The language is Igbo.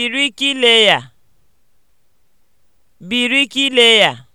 birikileya birikileya